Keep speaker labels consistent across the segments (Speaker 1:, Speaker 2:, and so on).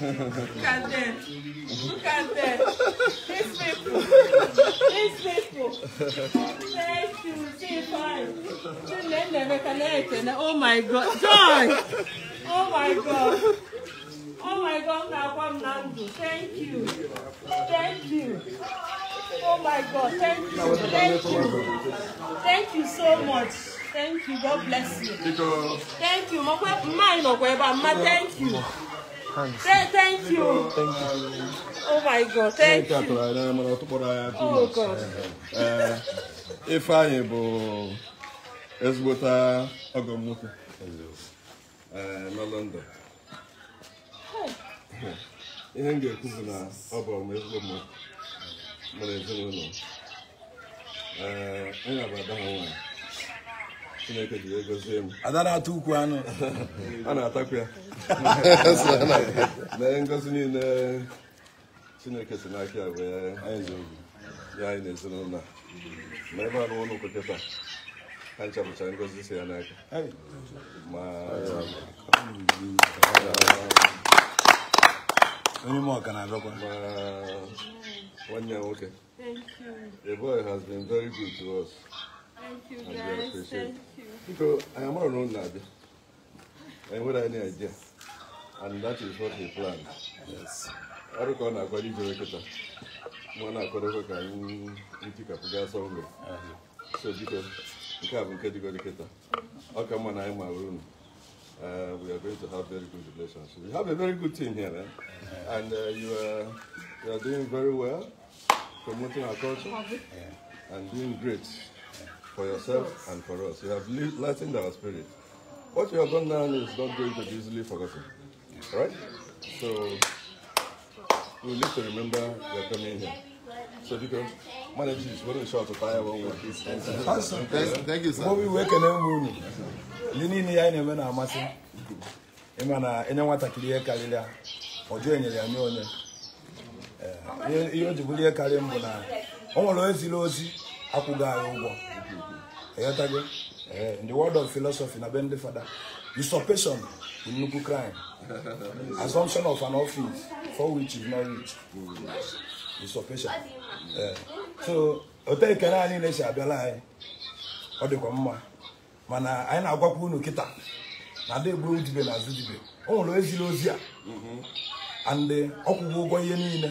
Speaker 1: Look at them. Look at them. These people. These people. Thank you. See fine. Oh my God. Joy. Oh my God. Oh my God, Nakwam Nandu. Thank you. Thank you. Oh my God. Thank you. Thank
Speaker 2: you.
Speaker 1: Thank you so much. Thank you. God bless you. Thank you. Thank you. Thank you. Thank, thank you. Thank you. Oh my God, thank you.
Speaker 2: you oh Ee, Ifeanyị bụ ezigbota nwoke na Ihe m ga-ekwu bụ na ọ bụ m ezigbo mmadụ mara ezinụlọ. Ee, anyị na-abụ ada ha chineke ji wee gozie m ada na-ata
Speaker 3: ukwu anụ a na-atakwu ya
Speaker 2: na ngozi niile chineke si n'aka ya wee ya anyị na ezinụlọ ma ebe a na ụlọ kịta ha nchapụchara ngozi si ya n'aka onye na-abịakwa nwanne ya nwoke eboy has
Speaker 1: Thank you, guys. Thank you.
Speaker 2: Because I am not known that. And without any idea. And that is what he planned. Yes. I don't know what you do. Mwana akwadokwa ka ntikapụga sọmgbe so biko nke a bụ nke dịgo dịkịta ọ ka mma na anyị mawere unu Uh, we are going to have very good relations. We have a very good team here, Eh? and uh, you, are, you, are, doing very well, promoting our culture, yeah. and doing great. for yourself and for us. You have lightened our spirit. What you have done now is not going to be easily forgotten. Right? So we need to remember you're coming here. So you can manage this, we're short to fire one more. Thank you, sir. What we
Speaker 3: work in the morning. You need the eye never na amasi. Imana ene watakiri e kalilia. Ojo enye ya nyonye. Eh, iyo jibulie kali mbona. Onwo lo ezilo ozi. akwụghị anyị ụgwọ eghọtago ee ndị word of philosophy na be ndị fada usurpation bụ nnukwu crime assumption of an office for which is not rich eh, so otu ekele anyị na-esi abịala anyị ọ dịkwa mma mana anyị na-agwakwa unu kịta na ndị gburu dibe na azụ dibe o nwere eziri ozi a mhm. and eh, ọkwụgwọ ụgwọ ihe niile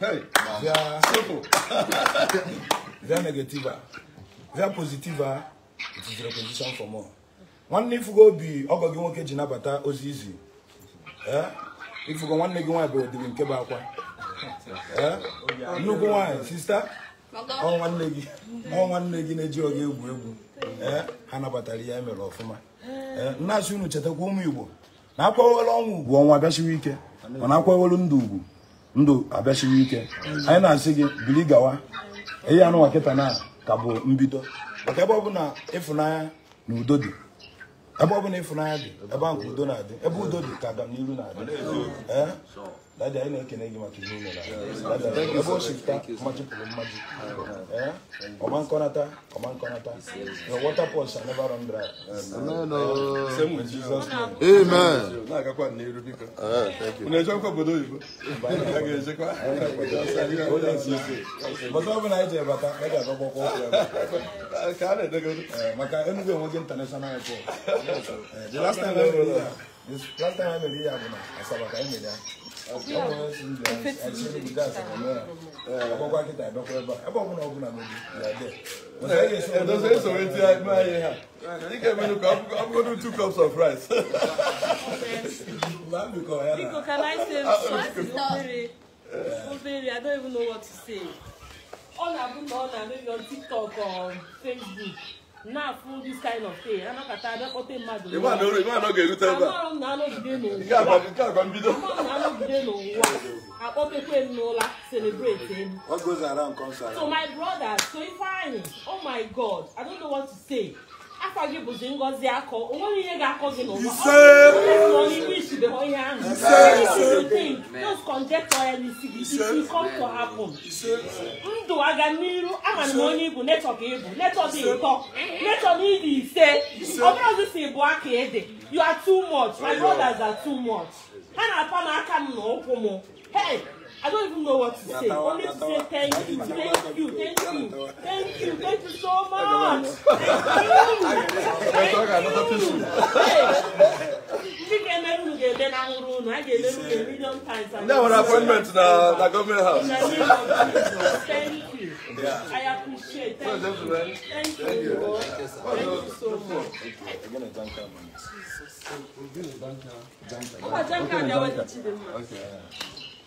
Speaker 3: Hey, via, via negative, via positive, it is reposition for more. nwanne ifugo obi ọgọ gị nwoke ji nabata ozi izi eh? ifugo nwanne gị nwaanyị bụ odiri nke bụ akwa
Speaker 2: eh? nnukwu nwaanyị sista ọ nwanne gị ọ nwanne gị
Speaker 3: na-eji oge egwu egwu eh? ha nabatara ya emere ọfụma nna asị unu chetakwa ụmụ igbo na akwawela ọnwa ugwu ọnwa bịachiwa ike na akwawelu ndụ ugwu ndụ abịachiri ike anyị na-asị gị bili gawa ihe anụ nkịta na ka bụ mbido maka ebe ọbụla ịfụnanya na udo dị ebe ọbụla ịfụnanya dị ebe ahụ ka udo na-adị ebe udo dị ka agamnihu na-adị dada anyị na-ekene gị maka ihe imere ebe o shifta machịpụrụ mmaji ọma nkọnata ọma nkọnata the water pot shall never run dry oh. same with Jesus na-agakwa n'iru biko
Speaker 2: unu ejekwa obodo oyibo but ga-agakwa ọkwa
Speaker 3: ọkụ ya eh, international eh, the last time I bụ na Asaba ka anyị ya ẹ̀dọ́ sẹ́yìn
Speaker 1: sọ̀rọ̀
Speaker 2: do two cups of rice. Biko can
Speaker 1: I don't even know what to say. Ọ na-abụ na ọ na-eme on TikTok or Facebook now full this kind of thing anakata abẹ́kọ́tẹ́ mmadụ ịma na ọ ga-erute ebe a amarụ m na anọgide n'ụwa amarụ m na anọgide n'ụwa akpọpekwe m n'ụla celebrate around. so my brother so ifeanyi oh my god i don't know what to say afọ gị bụzi ngọzi akọ o nweghị ihe ga-akọ gị n'ụwa ọn'ihu ishidebe ihe ahụ anything those conjecture ya n'isi gị isi come to happen ndụ aga n'iru ama m onye ibu netọ ka ịbụ netọ dị ịtọ netọ na ịdị ise ọbụrụzi si bụ aka ede you are too much my brothers are too much ha na-apa n'aka m na ụkwụ m hey I don't even know what to say. Only to say thank you, thank you, thank you, thank you, thank you so much. Thank you.
Speaker 2: Thank you.
Speaker 1: Hey. Ndị ga-emerụ unu ga-ede na nwụrụ unu, a ga-emerụ unu a million times. Ndị nwere appointment na na gọọmenti house. Thank you. I appreciate. Thank you. Thank you. Thank you so much. you. Thank you. Thank you. Thank you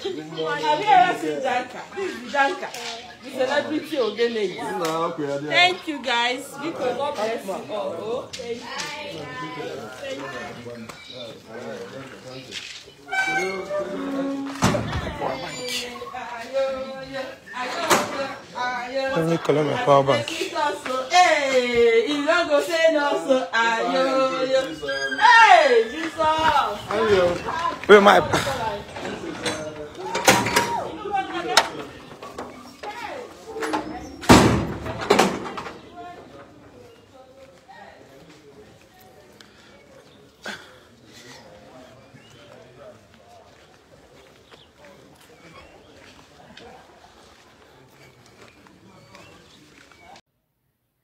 Speaker 1: Have you ever seen Janka? This is Janka, the celebrity of Thank you guys. Because God bless you all. Oh, thank you. Let me call my power bank. Hey, you don't go say no, so ayo, yo. Hey, Jesus.
Speaker 3: Where my?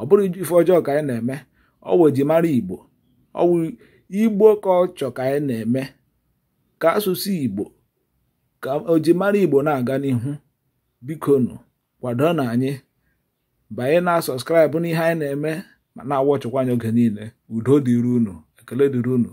Speaker 3: ọ bụrụ ife ọjọọ ka anyị na-eme ọwụ mara igbo ọwụ igbo ka ọ chọ ka anyị na-eme ka asụsụ igbo ka ojimara igbo na-aga n'ihu bikonu kwado na anyị banye na sọskraịbụ n'ihe anyị na-eme ma na-awọchịkwa anya oge niile udo dịrị unu ekele dịrị unu